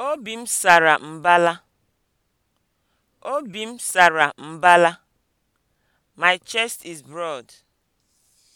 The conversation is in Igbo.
Obi m sara mbala. Obi m sara mbala. My chest is broad.